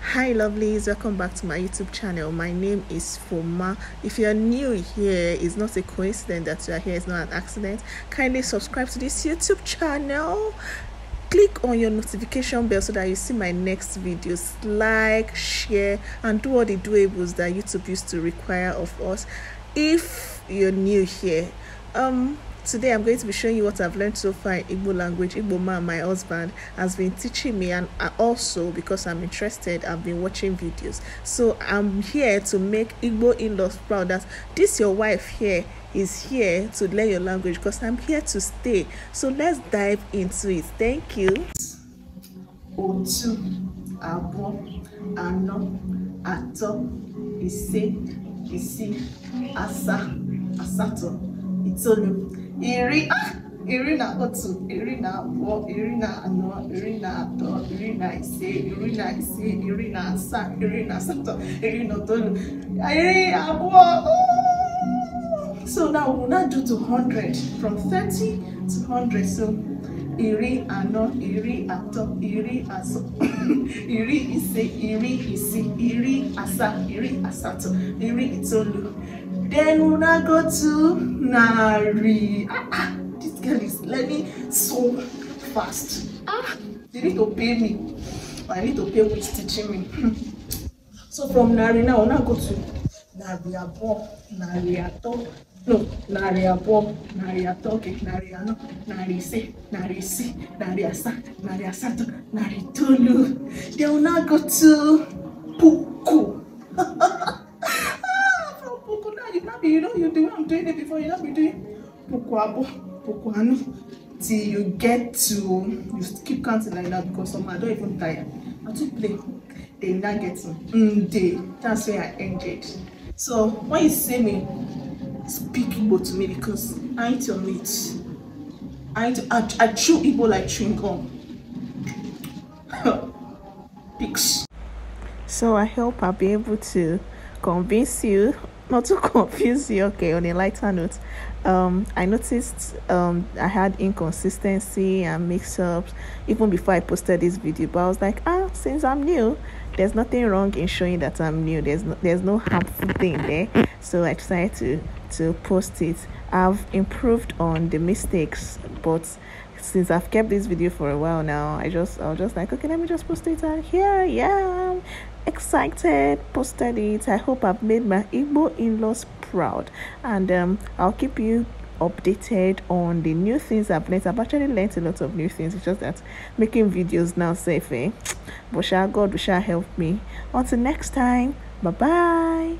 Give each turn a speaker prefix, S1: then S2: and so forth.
S1: hi lovelies welcome back to my youtube channel my name is foma if you're new here it's not a coincidence that you're here it's not an accident kindly subscribe to this youtube channel click on your notification bell so that you see my next videos like share and do all the doables that youtube used to require of us if you're new here um today i'm going to be showing you what i've learned so far in igbo language igbo man my husband has been teaching me and also because i'm interested i've been watching videos so i'm here to make igbo in-laws proud that this your wife here is here to learn your language because i'm here to stay so let's dive into it thank you otu anọ atọ ise asatọ itoolu iri iri na otu iri na abụọ iri na anọ iri na atọ iri na ise iri na ise iri na asaa iri na asatọ iri na itoolu iri abụọ so now we will now do to hundred from thirty to hundred so iri anọ iri atọ iri asọ iri ise iri isii iri asaa iri asatọ iri itoolu Then una go to Nari. Ah, ah, this girl is learning so fast. Ah, they need to pay me. I need to pay who is teaching me. Hmm. so from Nari now, una go to Nari Abo, Nari Ato. No, Nari Abo, Nari Ato, okay, Nari Ano, Nari Se, Nari Si, Nari Asa, Nari Asato, Nari Tolu. They will now go to Poo. before you not be doing pokuabo, pokuano till you get to you keep counting like that because some I don't even tire. I too play. They now get to mm day. That's where I ended. So when you see me, speak Igbo to me because I ain't your mate. I ain't, I, I chew Igbo like chewing gum. Peace. So I hope I'll be able to convince you not to confuse you okay on a lighter note um i noticed um i had inconsistency and mix-ups even before i posted this video but i was like ah since i'm new there's nothing wrong in showing that i'm new there's no there's no harmful thing there so i decided to to post it i've improved on the mistakes but since I've kept this video for a while now, I just I was just like, okay, let me just post it and here yeah, I am excited, posted it. I hope I've made my Igbo in-laws proud and um I'll keep you updated on the new things I've learned. I've actually learned a lot of new things. It's just that making videos now safe, eh? But shall God we shall help me. Until next time, bye bye.